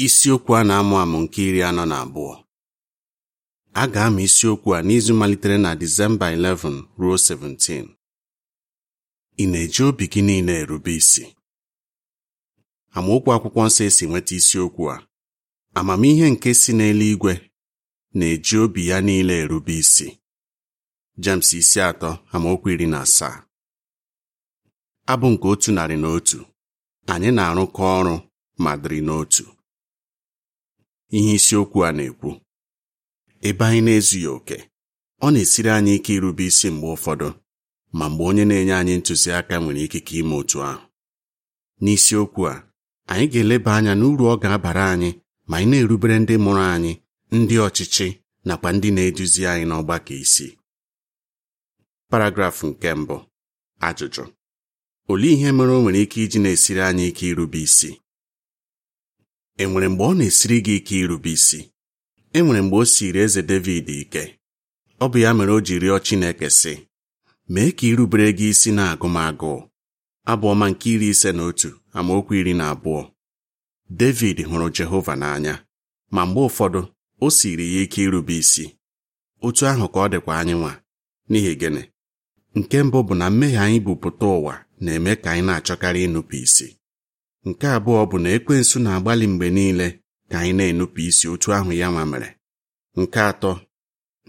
isiokwu a na-amụ amụ nke iri anọ na abụọ a ga-amụ isiokwu a n'izu malitere na Disemba 11 ruo 17 ị na-eji obi gị niile erube isi amaokwu akwụkwọ nsọ esi nweta isiokwu a amamihe nke si n'eluigwe na-eji obi ya niile erube isi James isi atọ amaokwu iri na asaa abụ nke otu narị na otu anyị na-arụkọ ọrụ ma dịrị n'otu ihe isiokwu a na-ekwu ebe anyị na-ezughị oke ọ na-esiri anyị ike irube isi mgbe ụfọdụ ma mgbe onye na-enye anyị ntụziaka nwere ikike ime otu ahụ n'isiokwu a anyị ga-eleba anya n'uru ọ ga-abara anyị ma anyị na-erubere ndị mụrụ anyị ndị ọchịchị nakwa ndị na-eduzi anyị n'ọgbakọ isi paragrafụ nke mbụ ajụjụ olee ihe mere o nwere ike iji na-esiri anyị ike irube isi enwere mgbe ọ na-esiri gị ike irube isi enwere mgbe o siri eze David ike ọ bụ ya mere o ji rịọ Chineke sị mee ka irubere gị isi na agụmagụ abụ ọma nke iri ise na otu amaokwu iri na abụọ David hụrụ Jehova n'anya ma mgbe ụfọdụ o siri ya ike irube isi otu ahụ ka ọ dịkwa anyị nwa n'ihi gịnị nke mbụ bụ na mmehie anyị bupụta ụwa na-eme ka anyị na-achọkarị ịnụpụ isi nke abụọ bụ na ekwensu na-agbalị mgbe niile ka anyị na-enupụ isi otu ahụ ya ma mere nke atọ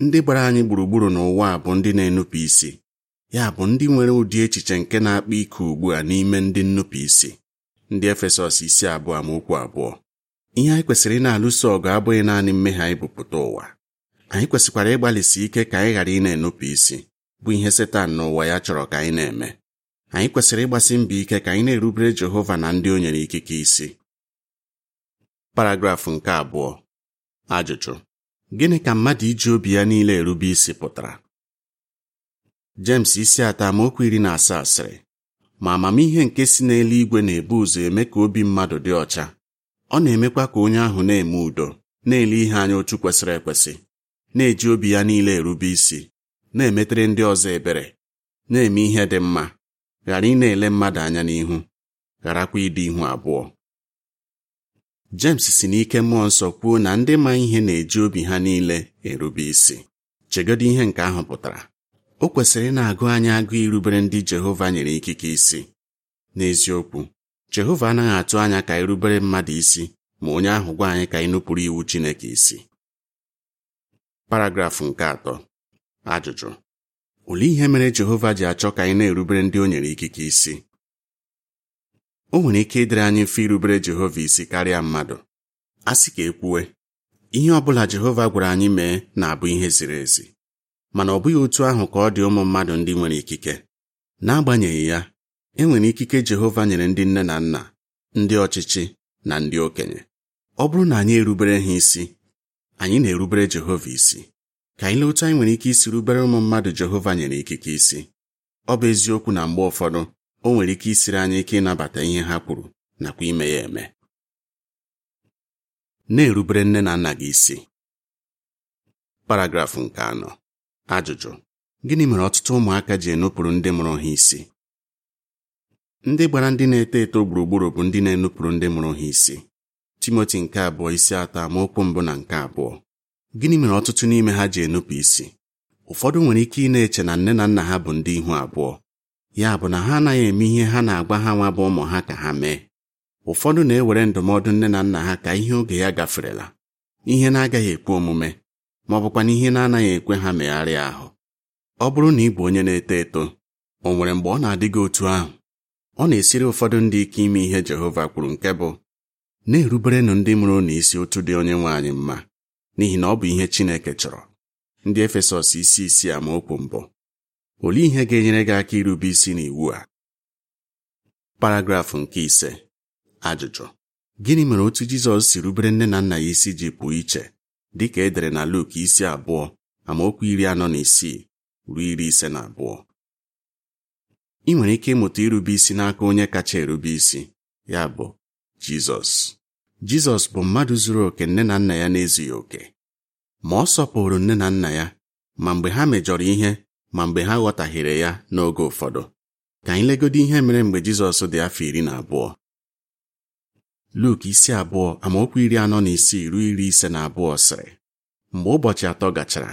ndị gbara anyị gburugburu n'ụwa bụ ndị na-enupụ isi ya bụ ndị nwere ụdị echiche nke na-akpa ike ugbu a n'ime ndị nnupụ isi ndị efesọs isi abụọ ma okwu abụọ ihe anyị kwesịrị na-alụso ọgụ abụghị naanị mmehie anyị bụpụta ụwa anyị kwesịkwara ịgbalịsi ike ka anyị ghara ị na-enupụ isi bụ ihe setan n'ụwa ya chọrọ ka anyị na-eme anyị kwesịrị ịgbasi mbọ ike ka anyị na-erubere Jehova na ndị o nyere ikike isi paragrafụ nke abụọ ajụjụ gịnị ka mmadụ iji obi ya niile erube isi pụtara James isi atọ amaokwu iri na asaa sịrị ma amamihe nke si n'eluigwe na-ebu ụzọ eme ka obi mmadụ dị ọcha ọ na-emekwa ka onye ahụ na-eme udo na-ele ihe anya otu kwesịrị ekwesị na-eji obi ya niile erube isi na-emetere ndị ọzọ ebere na-eme ihe dị mma ghara ị na-ele mmadụ anya n'ihu gharakwa ịdị ihu abụọ jemes si n'ike mmụọ nsọ kwuo na ndị ma ihe na-eji obi ha niile erube isi chegodo ihe nke ahụ pụtara o kwesịrị na-agụ anyị agụ irubere ndị Jehova nyere ikike isi n'eziokwu Jehova anaghị atụ anya ka irubere mmadụ isi ma onye ahụ gwa anyị ka ịnụpụrụ iwu Chineke isi paragrafụ nke atọ ajụjụ olee ihe mere Jehova ji achọ ka anyị na-erubere ndị o nyere ikike isi o nwere ike ịdịrị anyị mfe irubere Jehova isi karịa mmadụ a sị ka e kwuwe ihe ọ bụla Jehova gwara anyị mee na-abụ ihe ziri ezi mana ọ bụghị otu ahụ ka ọ dị ụmụ mmadụ ndị nwere ikike n'agbanyeghị ya e nwere ikike Jehova nyere ndị nne na nna ndị ọchịchị na ndị okenye ọ bụrụ na anyị erubere ha isi anyị na-erubere Jehova isi ka anyị lee otu anyị nwere ike isi rubere ụmụ mmadụ Jehova nyere ikike isi ọ bụ eziokwu na mgbe ụfọdụ o nwere ike isiri anyị ike ịnabata ihe ha kwuru nakwa ime ya eme na-erubere nne na nna gị isi paragrafụ nke anọ ajụjụ gịnị mere ọtụtụ ụmụaka ji enupụrụ ndị mụrụ ha isi ndị gbara ndị na-eto eto gburugburu bụ ndị na-enupụrụ ndị mụrụ ha isi Timoti nke abụọ isi atọ amaokwu mbụ na nke abụọ gịnị mere ọtụtụ n'ime ha ji enupụ isi ụfọdụ nwere ike ị na-eche na nne na nna ha bụ ndị ihu abụọ ya bụ na ha anaghị eme ihe ha na-agwa ha nwa bụ ụmụ ha ka ha mee ụfọdụ na-ewere ndụmọdụ nne na nna ha ka ihe oge ya gaferela ihe na-agaghị ekwe omume ma ọ bụkwa na ihe na-anaghị ekwe ha megharịa ahụ ọ bụrụ na ị bụ onye na-eto eto o nwere mgbe ọ na-adị gị otu ahụ ọ na-esiri ụfọdụ ndị ike ime ihe Jehova kwuru nke bụ na-eruberenụ ndị mụrụ na isi otu dị onye nwe anyị mma n'ihi na ọ bụ ihe Chineke chọrọ ndị Efesọs isi isi amaokwu mbụ olee ihe ga-enyere gị aka irube isi n'iwu a paragrafụ nke ise ajụjụ gịnị mere otu Jizọs si rubere nne na nna ya isi ji pụọ iche dị ka edere na Luk isi abụọ amaokwu iri anọ na isii ruo iri ise na abụọ ị nwere ike ịmụta irube isi n'aka onye kacha erube isi ya bụ Jizọs jizọs bụ mmadụ zuru oke nne na nna ya na-ezughị oke ma ọ sọpụrụ nne na nna ya ma mgbe ha mejọrọ ihe ma mgbe ha ghọtahiere ya n'oge ụfọdụ ka anyị legodo ihe mere mgbe jizọs dị afọ iri na abụọ Luk isi abụọ amaokwu iri anọ na isii ruo iri ise na abụọ sịrị mgbe ụbọchị atọ gachara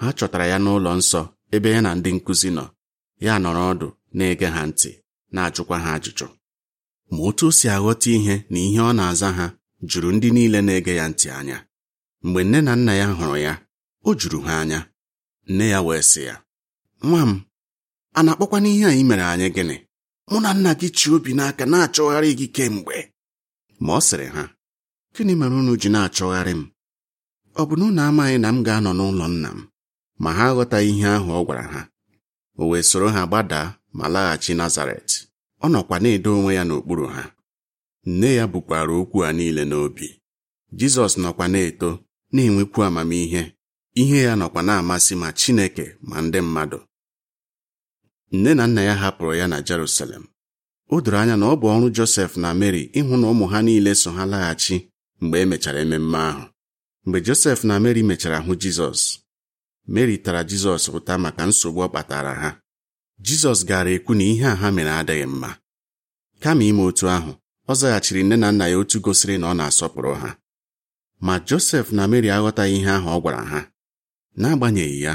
ha chọtara ya n'ụlọ nsọ ebe ya na ndị nkụzi nọ ya nọrọ ọdụ na-ege ha ntị na-ajụkwa ha ajụjụ ma otu o si aghọta ihe na ihe ọ na-aza ha juru ndị niile na-ege ya ntị anya mgbe nne na nna ya hụrụ ya o juru ha anya nne ya wee sị ya nwa m a na n'ihe a anyị mere anyị gịnị mụ na nna gị chi obi n'aka na-achọgharị gị kemgbe ma ọ sịrị ha gịnị mere unu ji na-achọgharị m ọ bụ na unu amaghị na m ga-anọ n'ụlọ nna m ma ha aghọtaghị ihe ahụ ọ gwara ha o wee soro ha gbadaa ma laghachi Nazaret ọ nọkwa na-edo onwe ya n'okpuru ha nne ya bukwara okwu a niile n'obi jizọs nọkwa na-eto na-enwekwu amamihe ihe ya nọkwa na-amasị ma chineke ma ndị mmadụ nne na nna ya hapụrụ ya na Jerusalem o doro anya na ọ bụ ọrụ Josef na Mary ịhụ na ụmụ ha niile so ha laghachi mgbe emechara ememme ahụ mgbe Josef na Mary mechara hụ Jizọs Mary tara Jizọs ụta maka nsogbu ọ kpatara ha Jizọs gara ekwu na ihe a ha mere adịghị mma kama ime otu ahụ ọ zaghachiri nne na nna ya otu gosiri na ọ na-asọpụrụ ha ma Josef na Mary aghọtaghị ihe ahụ ọ gwara ha n'agbanyeghị ya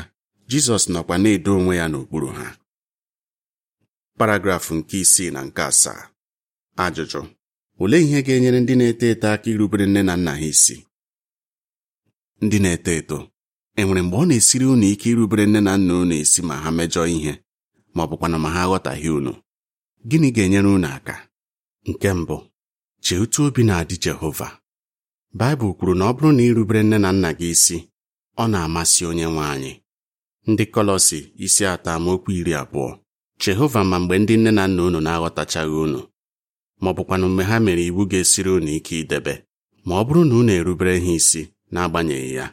Jizọs nọkwa na-edo onwe ya n'okpuru ha paragrafụ nke isii na nke asaa ajụjụ olee ihe ga-enyere ndị na-eto eto aka irubere nne na nna ha isi ndị na-eto eto enwere mgbe ọ na-esiri unu ike irubere nne na nna unu esi ma ha mejọọ ihe ma ọ bụkwanụ ma ha aghọtaghị unu gịnị ga-enyere unu aka nke mbụ chee otu obi na-adị Jehova Baịbụl kwuru na ọ bụrụ na irubere nne na nna gị isi ọ na-amasị onye nwe anyị ndị Kọlọsi isi atọ amaokwu iri abụọ Jehova ma mgbe ndị nne na nna unu na-aghọtachaghị unu ma ọ bụkwanụ mgbe ha mere iwu ga-esiri unu ike idebe ma ọ bụrụ na unu erubere ha isi n'agbanyeghị ya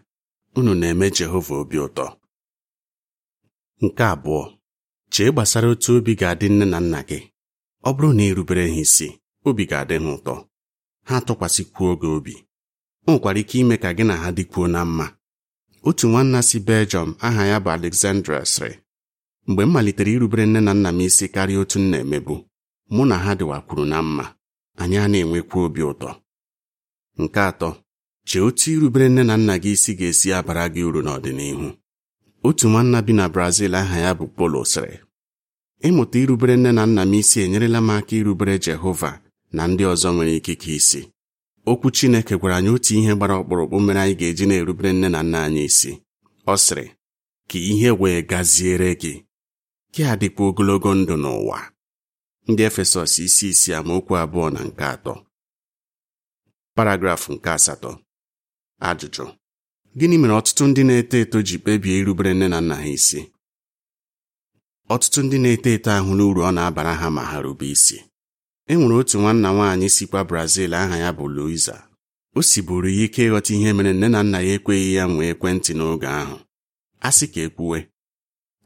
unu na-eme Jehova obi ụtọ nke abụọ chee gbasara otu obi ga-adị nne na nna gị ọ bụrụ na irubere ha isi obi ga-adị ha ụtọ ha tụkwasịkwuo oge obi o nwekwara ike ime ka gị na ha dịkwuo na mma otu nwanna si Belgium aha ya bụ Alexandra sịrị mgbe m malitere irubere nne na nna m isi karịa otu m na-emebu mụ na ha dịwakwuru na mma anyị a na-enwekwa obi ụtọ nke atọ chee otu irubere nne na nna gị isi ga-esi abara gị uru n'ọdịnihu otu nwanna bi na Brazil aha ya bụ Polo sịrị ịmụta irubere nne na nna m isi enyerela m aka irubere Jehova na ndị ọzọ nwere ikike isi okwu Chineke gwara anyị otu ihe gbara ọkpụrụkpụ mere anyị ga-eji na-erubere nne na nna anyị isi ọ sịrị ka ihe wee gaziere gị gị adịkwa ogologo ndụ n'ụwa ndị Efesọs isi isi amaokwu abụọ na nke atọ paragrafụ nke asatọ ajụjụ gịnị mere ọtụtụ ndị na-eto eto ji kpebie irubere nne na nna ha isi ọtụtụ ndị na-eto eto ahụ n'uru ọ na-abara ha ma ha rube isi e nwere otu nwanna nwaanyị sikwa Brazil aha ya bụ Luiza o siburu ya ike ịghọta ihe mere nne na nna ya ekweghị ya nwee ekwentị n'oge ahụ a sị ka ekwuwe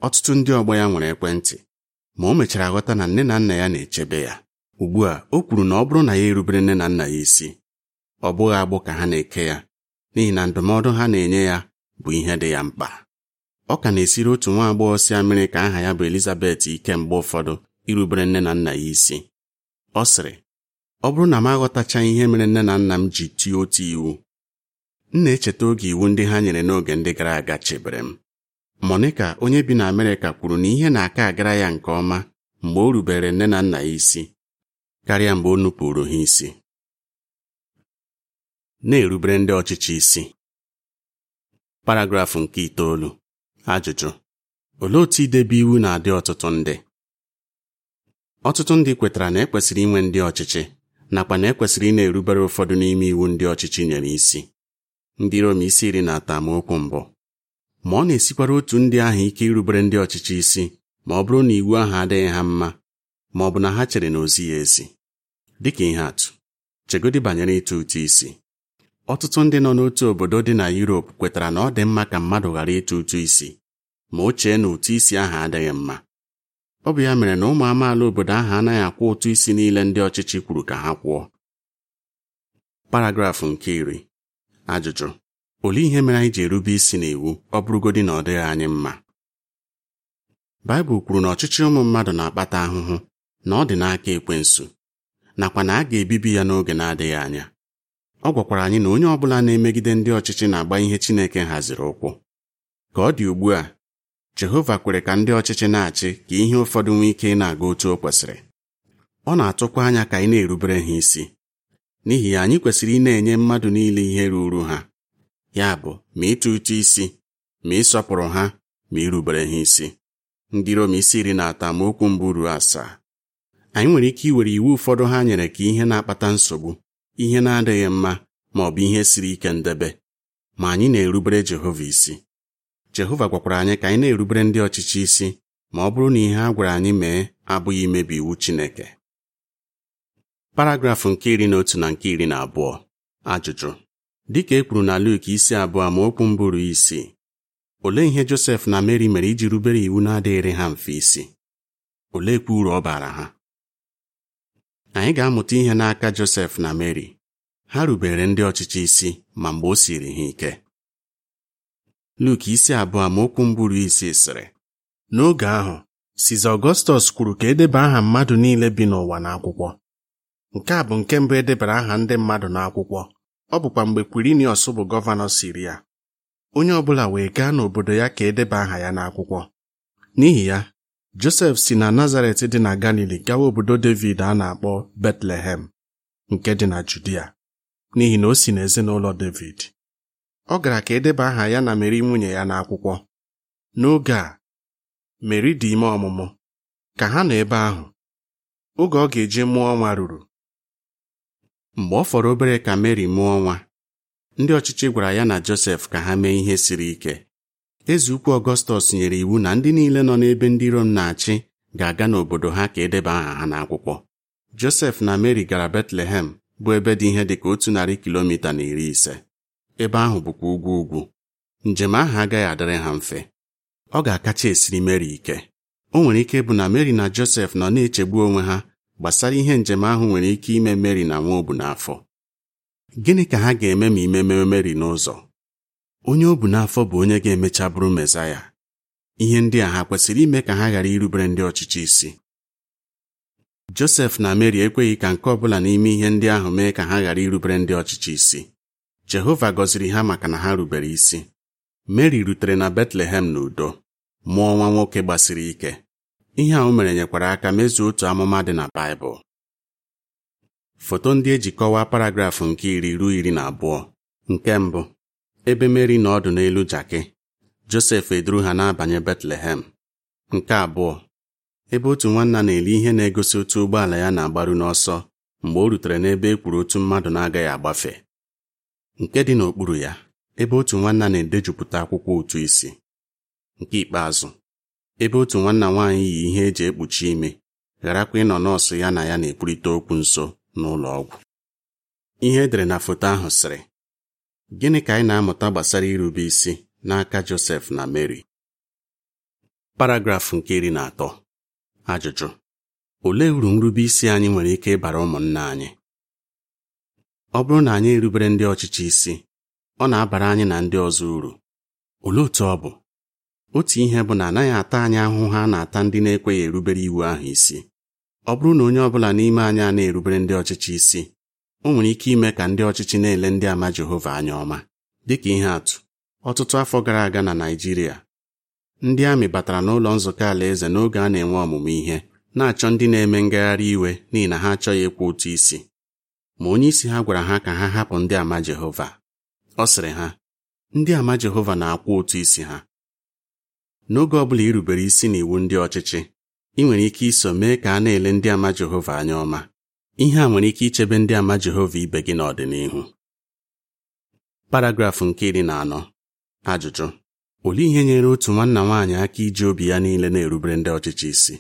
ọtụtụ ndị ọgbọ ya nwere ekwentị ma o mechara ghọta na nne na nna ya na-echebe ya ugbu a o kwuru na ọ bụrụ na ya erubere nne na nna ya isi ọ bụghị agbụ ka ha na-eke ya n'ihi na ndụmọdụ ha na-enye ya bụ ihe dị ya mkpa ọ ka na-esiri otu nwa agbọghọ si Amerịka aha ya bụ Elizabeth ike mgbe ụfọdụ irubere nne na nna ya isi ọ sịrị ọ bụrụ na m aghọtacha ihe mere nne na nna m ji tie otu iwu m na-echeta oge iwu ndị ha nyere n'oge ndị gara aga chebere m Monica onye bi na Amerịka kwuru na ihe na-aka agara ya nke ọma mgbe o rubere nne na nna ya isi karịa mgbe o nupụrụ ha isi na-erubere ndị ọchịchị isi paragrafụ nke itoolu ajụjụ olee otu idebe iwu na-adị ọtụtụ ndị ọtụtụ ndị kwetara na ekwesịrị inwe ndị ọchịchị nakwa na ekwesịrị ị na-erubere ụfọdụ n'ime iwu ndị ọchịchị nyere isi ndị Rom isi iri na atamokwu mbụ ma ọ na-esikwara otu ndị ahụ ike irubere ndị ọchịchị isi ma ọ bụrụ na iwu ahụ adịghị ha mma ma ọ bụ na ha chere na ozi ya ezi dịka ihe atụ chegodi banyere ịtụ ụtụ isi ọtụtụ ndị nọ n'otu obodo dị na yurope kwetara na ọ dị mma ka mmadụ ghara ịtụ ụtụ isi ma o chee na ụtụ isi ahụ adịghị mma ọ bụ ya mere na ụmụ amaala obodo ahụ anaghị akwụ ụtụ isi niile ndị ọchịchị kwuru ka ha kwụọ paragrafụ nke iri ajụjụ olee ihe mere anyị ji erube isi n'iwu ọ bụrụgodị na ọ dịghị anyị mma Baịbụl kwuru na ọchịchị ụmụ mmadụ na-akpata ahụhụ na ọ dị n'aka ekwensu nakwa na a ga-ebibi ya n'oge na-adịghị anya ọ gwakwara anyị na onye ọ bụla na-emegide ndị ọchịchị na-agba ihe Chineke haziri ụkwụ ka ọ dị ugbu a jehova kwere ka ndị ọchịchị na-achị ka ihe ụfọdụ nwee ike ị na-aga otu o kwesịrị ọ na-atụkwa anya ka anyị na-erubere ha isi n'ihi ya anyị kwesịrị ị na-enye mmadụ niile ihe ruru ha ya bụ ma ịtụ ụtụ isi ma ịsọpụrụ ha ma irubere ha isi ndị Rom isi iri na ata ma okwu mbụ ruo asaa anyị nwere ike iwere iwu ụfọdụ ha nyere ka ihe na-akpata nsogbu ihe na-adịghị mma ma ọ bụ ihe siri ike ndebe ma anyị na-erubere Jehova isi jehova gwakwara anyị ka anyị na-erubere ndị ọchịchị isi ma ọ bụrụ na ihe a gwara anyị mee abụghị imebi iwu chineke paragrafụ nke iri na otu na nke iri na abụọ ajụjụ dịka e kwuru na Luk isi abụọ ma okwu mbụrụ isi olee ihe Josef na Mary mere iji rubere iwu na-adịghịrị ha mfe isi oleekwa uru ọ bara ha anyị ga-amụta ihe n'aka Josef na Mary, ha rubere ndị ọchịchị isi ma mgbe o siri ha ike Luk isi abụọ amaokwu mbụrụ isi sịrị n'oge ahụ Siza Ọgọstọs kwuru ka edeba aha mmadụ niile bi n'ụwa n'akwụkwọ nke a bụ nke mbụ edebara aha ndị mmadụ n'akwụkwọ ọ bụkwa mgbe Kwirinius bụ gọvanọ ya onye ọ bụla wee gaa n'obodo ya ka edeba aha ya n'akwụkwọ n'ihi ya Josef si na Nazaret dị na Galili gawa obodo David a na-akpọ Betlehem nke dị na Judia n'ihi na o si n'ezinụlọ David ọ gara ka edeba aha ya na Meri nwunye ya n'akwụkwọ n'oge a Meri dị ime ọmụmụ ka ha nọ ebe ahụ oge ọ ga-eji mụọ nwa ruru mgbe ọ fọrọ obere ka Meri mụọ nwa ndị ọchịchị gwara ya na Josef ka ha mee ihe siri ike eze ukwu Ọgọstọs nyere iwu na ndị niile nọ n'ebe ndị Rom na-achị ga-aga n'obodo ha ka edeba aha ha n'akwụkwọ Josef na Meri gara Betlehem bụ ebe dị ihe dị ka otu narị kilomita na iri ise ebe ahụ bụkwa ugwu ugwu njem ahụ agaghị adịrị ha mfe ọ ga-akacha esiri Meri ike o nwere ike bụ na Meri na Josef nọ na-echegbu onwe ha gbasara ihe njem ahụ nwere ike ime Meri na nwa obu n'afọ gịnị ka ha ga-eme ma imeme Meri n'ụzọ onye obu n'afọ bụ onye ga-emecha bụrụ Mesaya ihe ndị a ha kwesịrị ime ka ha ghara irubere ndị ọchịchị isi Josef na Meri ekweghị ka nke ọ bụla n'ime ihe ndị ahụ mee ka ha ghara irubere ndị ọchịchị isi Jehova gọziri ha maka na ha rubere isi Meri rutere na Betlehem n'udo mụọ nwa nwoke gbasiri ike ihe a o mere nyekwara aka mezuo otu amụma dị na Baịbụl foto ndị eji kọwaa paragrafụ nke iri ruo iri na abụọ nke mbụ ebe Meri na ọdụ n'elu jakị Josef eduru ha na-abanye Betlehem nke abụọ ebe otu nwanna na-eli ihe na-egosi otu ụgbọala ya na-agbaru n'ọsọ mgbe o rutere n'ebe e kwuru otu mmadụ na-agaghị agbafe nke dị n'okpuru ya ebe otu nwanna na-edejupụta akwụkwọ ụtụ isi nke ikpeazụ ebe otu nwanna nwaanyị yi ihe eji ekpuchi ime gharakwa ịnọ nọọsụ ya na ya na-ekwurịta okwu nso n'ụlọ ọgwụ ihe edere na foto ahụ sịrị gịnị ka anyị na-amụta gbasara irube isi n'aka Josef na Mary paragrafụ nke iri na atọ ajụjụ olee uru nrube isi anyị nwere ike ịbara ụmụnna anyị ọ bụrụ na anyị erubere ndị ọchịchị isi ọ na-abara anyị na ndị ọzọ uru olee otu ọ bụ otu ihe bụ na anaghị ata anyị ahụhụ ha na-ata ndị na-ekweghị erubere iwu ahụ isi ọ bụrụ na onye ọ bụla n'ime anyị a na-erubere ndị ọchịchị isi o nwere ike ime ka ndị ọchịchị na-ele ndị ama Jehova anya ọma dịka ihe atụ ọtụtụ afọ gara aga na Naijiria, ndị amị batara n'ụlọ nzukọ alaeze n'oge a na-enwe ọmụmụ ihe na-achọ ndị na-eme ngagharị iwe n'ihi na ha achọghị ịkwụ ụtụ isi ma onye isi ha gwara ha ka ha hapụ ndị ama Jehova ọ sịrị ha ndị ama Jehova na-akwụ ụtụ isi ha n'oge ọ bụla irubere isi n'iwu ndị ọchịchị ị nwere ike iso mee ka a na-ele ndị ama Jehova anya ọma ihe a nwere ike ichebe ndị ama Jehova ibe gị n'ọdịnihu paragrafụ nke iri na anọ ajụjụ olee ihe nyere otu nwanna nwaanyị aka iji obi ya niile na-erubere ndị ọchịchị isi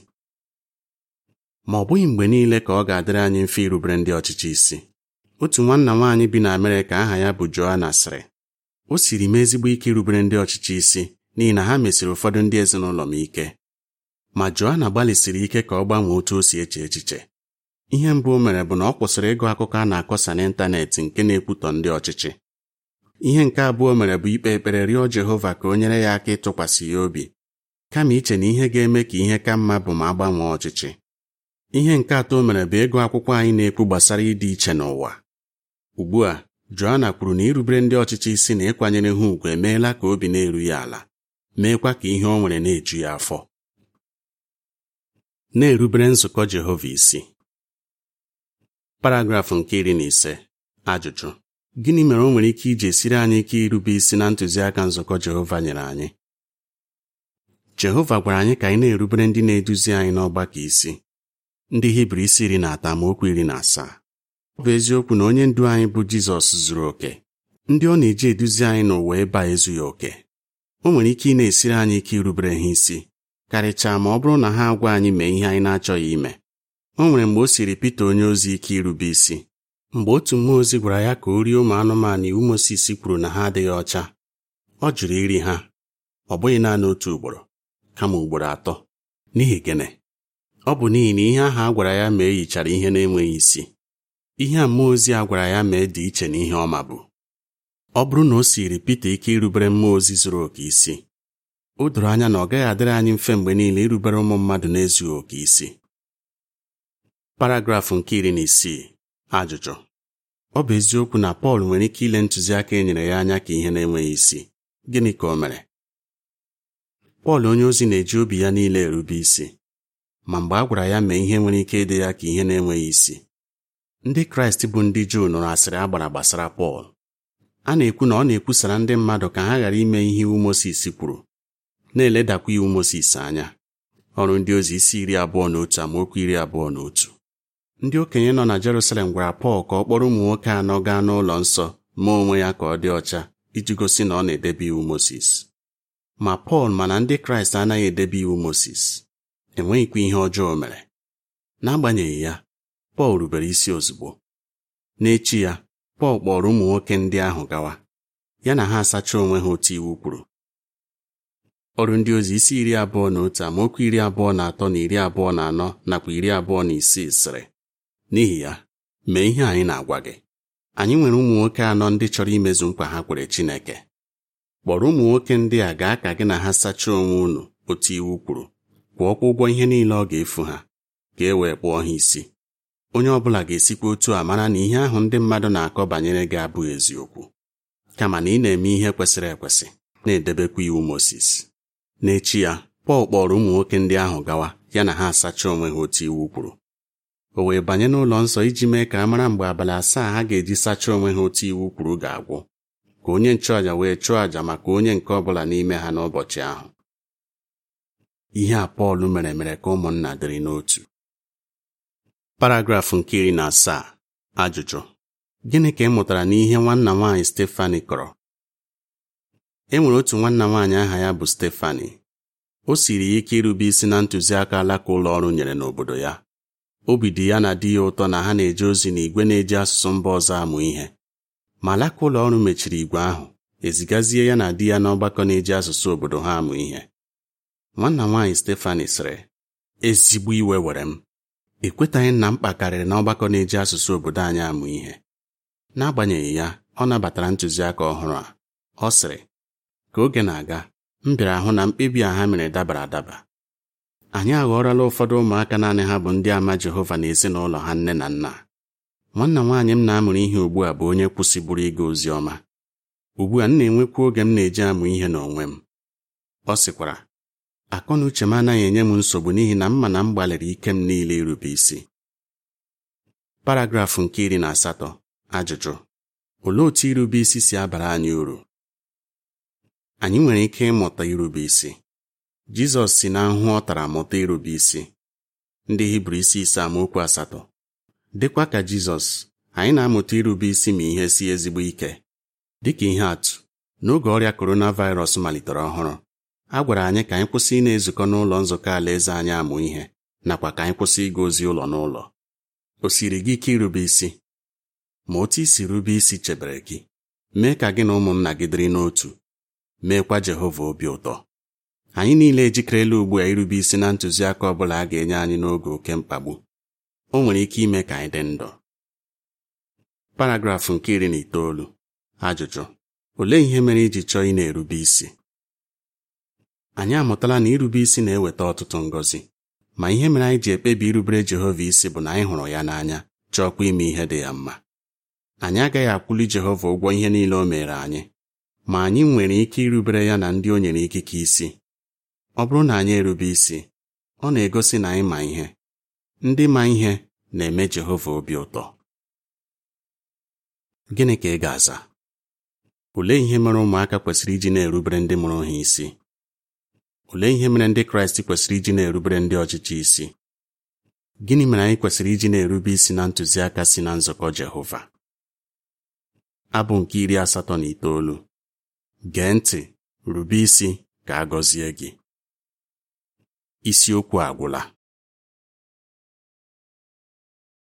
ma ọ bụghị mgbe niile ka ọ ga-adịrị anyị mfe irubere ndị ọchịchị isi otu nwanna nwaanyị bi na Amerịka aha ya bụ joana sịrị o siri m ezigbo ike irubere ndị ọchịchị isi n'ihi na ha mesiri ụfọdụ ndị ezinụlọ m ike ma joana gbalịsiri ike ka ọ gbanwee otu o si eche echiche ihe mbụ o mere bụ na ọ kwụsịrị ịgụ akụkọ a na-akọsa n'ịntanetị nke na-ekwutọ ndị ọchịchị ihe nke abụọ mere bụ ikpe ekpere rịọ Jehova ka o nyere ya aka ịtụkwasị ya obi kama iche na ihe ga-eme ka ihe ka mma bụ ma agbanwee ọchịchị ihe nke atọ mere bụ ịgụ akwụkwọ anyị na-ekwu gbasara ịdị iche n'ụwa ugbu a Joanna kwuru na irubere ndị ọchịchị isi na ịkwanyere ha ùgwù emeela ka obi na-eru ya ala meekwa ka ihe ọ nwere na-eju ya afọ na-erubere nzukọ Jehova isi paragrafụ nke iri na ise ajụjụ gịnị mere o nwere ike iji esiri anyị ike irube isi na ntụziaka nzukọ Jehova nyere anyị Jehova gwara anyị ka anyị na-erubere ndị na-eduzi anyị n'ọgbakọ isi ndị Hibru isi iri na atọ iri na asaa ọ bụ eziokwu na onye ndu anyị bụ Jizọs zuru oke ndị ọ na-eji eduzi anyị n'ụwa ebe a ezughị oke o nwere ike ị na-esiri anyị ike irubere ha isi karịchaa ma ọ bụrụ na ha agwa anyị mee ihe anyị na-achọghị ime o nwere mgbe o siri Pita onye ozi ike irube isi mgbe otu mmụọ ozi gwara ya ka o rie ụmụ anụmanụ iwu Mosis kwuru na ha adịghị ọcha ọ jụrụ iri ha ọ bụghị naanị otu ugboro kama ugboro atọ n'ihi gịnị ọ bụ n'ihi na ihe ahụ a gwara ya ma e yichara ihe na-enweghị isi ihe a mmụọ ozi a gwara ya mee dị iche na ihe ọma bụ ọ bụrụ na o siri Pita ike irubere mmụọ ozi zuru oke isi o doro anya na ọ gaghị adịrị anyị mfe mgbe niile irubere ụmụ mmadụ na-ezughị oke isi paragrafụ nke iri na isii ajụjụ ọ bụ eziokwu na Pọl nwere ike ile ntụziaka e nyere ya anya ka ihe na-enweghị isi gịnị ka o mere Pọl onye ozi na-eji obi ya niile erube isi ma mgbe a gwara ya mee ihe nwere ike ịdị ya ka ihe na-enweghị isi ndị kraịst bụ ndị juu nụrụ asịrị a gbara gbasara pọl a na-ekwu na ọ na-ekwusara ndị mmadụ ka ha ghara ime ihe iwu mosis kwuru na-eledakwa iwu mosis anya ọrụ ndị ozi isi iri abụọ na otu amaokwu iri abụọ na otu ndị okenye nọ na Jerusalem gwara Pọl ka ọ kpọrọ ụmụ nwoke anọ gaa n'ụlọ nsọ mee onwe ya ka ọ dị ọcha iji gosi na ọ na-edebe iwu mosis ma Pọl mana ndị Kraịst anaghị edebe iwu mosis enweghịkwa ihe ọjọọ mere n'agbanyeghị ya Pọl rubere isi ozugbo n'echi ya Pọl kpọrọ ụmụ nwoke ndị ahụ gawa ya na ha asacha onwe ha otu iwu kwuru ọrụ ndị ozi isi iri abụọ na otu amaokwu iri abụọ na atọ na iri abụọ na anọ nakwa iri abụọ na isii sịrị n'ihi ya mee ihe anyị na-agwa gị anyị nwere ụmụ nwoke anọ ndị chọrọ imezu mkpa ha kwere Chineke kpọrọ ụmụ nwoke ndị a gaa ka gị na ha sachaa onwe unu otu iwu kwuru kwụọkwa ụgwọ ihe niile ọ ga-efu ha ka e wee kpụọ ha isi onye ọ bụla ga-esikwa otu a mara na ihe ahụ ndị mmadụ na-akọ banyere gị abụghị eziokwu kama na ị na-eme ihe kwesịrị ekwesị na-edebekwa iwu Mozis n'echi ya Pọl kpọrọ ụmụ nwoke ndị ahụ gawa ya na ha asachaa onwe ha otu iwu kwuru o wee banye n'ụlọ nsọ iji mee ka a mara mgbe abalị asaa ha ga-eji sachaa onwe ha otu iwu kwuru ga-agwụ ka onye nchụàja wee chụọ àjà maka onye nke ọ bụla n'ime ha n'ụbọchị ahụ ihe a Pọl mere mere ka ụmụnna dịrị n'otu paragrafụ nke iri na asaa ajụjụ gịnị ka ị mụtara n'ihe nwanna nwaanyị Stefani kọrọ e nwere otu nwanna nwaanyị aha ya bụ Stefani o siri ya ike irube isi na ntụziaka alaka ụlọ ọrụ nyere n'obodo ya obi dị ya na di ya ụtọ na ha na-eje ozi na igwe na-eji asụsụ mba ọzọ amụ ihe ma alaka ụlọ ọrụ mechiri igwe ahụ ezigazie ya na di ya n'ọgbakọ na-eji asụsụ obodo ha amụ ihe nwanna nwaanyị Stefani sịrị ezigbo iwe were m ị kwetaghị na mkpa karịrị na ọgbakọ na-eji asụsụ obodo anyị amụ ihe n'agbanyeghị ya ọ nabatara ntụziaka ọhụrụ a ọ sịrị ka oge na-aga m bịara hụ na mkpebi a ha mere dabara adaba anyị aghọrọla ụfọdụ ụmụaka naanị ha bụ ndị ama Jehova na ezinụlọ ha nne na nna nwanna nwaanyị m na-amụrụ ihe ugbu a bụ onye kwụsịburu ịga ozi ọma ugbu a m na enwekwu oge m na-eji amụ ihe n'onwe m ọ sịkwara akọ na uche m anaghị enye m nsogbu n'ihi na m ma na m gbalịrị ike m niile irube isi paragrafụ nke iri na asatọ ajụjụ olee otu irube isi si abara anyị uru anyị nwere ike ịmụta irube isi Jizọs si na nhụ ọ tara mụta irube isi ndị Hibru isi ise amaokwu asatọ dịkwa ka Jizọs anyị na-amụta irube isi ma ihe si ezigbo ike dịka ihe atụ n'oge ọrịa coronavirus malitere ọhụrụ a gwara anyị ka anyị kwụsị ị na-ezukọ n'ụlọ nzukọ alaeze anyị amụ ihe nakwa ka anyị kwụsị ịga ozi ụlọ n'ụlọ o siri gị ike irube isi ma otu isi rube isi chebere gị mee ka gị na ụmụnna gị dịrị n'otu meekwa Jehova obi ụtọ anyị niile ejikerela ugbu a irube isi na ntụziaka ọ bụla a ga-enye anyị n'oge oke mkpagbu o nwere ike ime ka anyị dị ndụ paragrafụ nke iri na itoolu ajụjụ olee ihe mere iji chọọ ị na-erube isi anyị amụtala na irube isi na-eweta ọtụtụ ngọzi ma ihe mere anyị ji ekpebi irubere Jehova isi bụ na anyị hụrụ ya n'anya chọọkwa ime ihe dị ya mma anyị agaghị akwụli Jehova ụgwọ ihe niile o mere anyị ma anyị nwere ike irubere ya na ndị o nyere ikike isi ọ bụrụ na anyị erube isi ọ na-egosi na anyị ma ihe ndị ma ihe na-eme Jehova obi ụtọ gịnị ka ị ga-aza olee ihe mere ụmụaka kwesịrị iji na-erubere ndị mụrụ ha isi Olee ihe mere ndị Kraịst kwesịrị iji na-erubere ndị ọchịchị isi? Gịnị mere anyị kwesịrị iji na-erube isi na ntụziaka si na nzọkọ Jehova? Abụ nke iri asatọ na itoolu. Gee ntị, rube isi ka a gọzie gị. Isiokwu agwụla.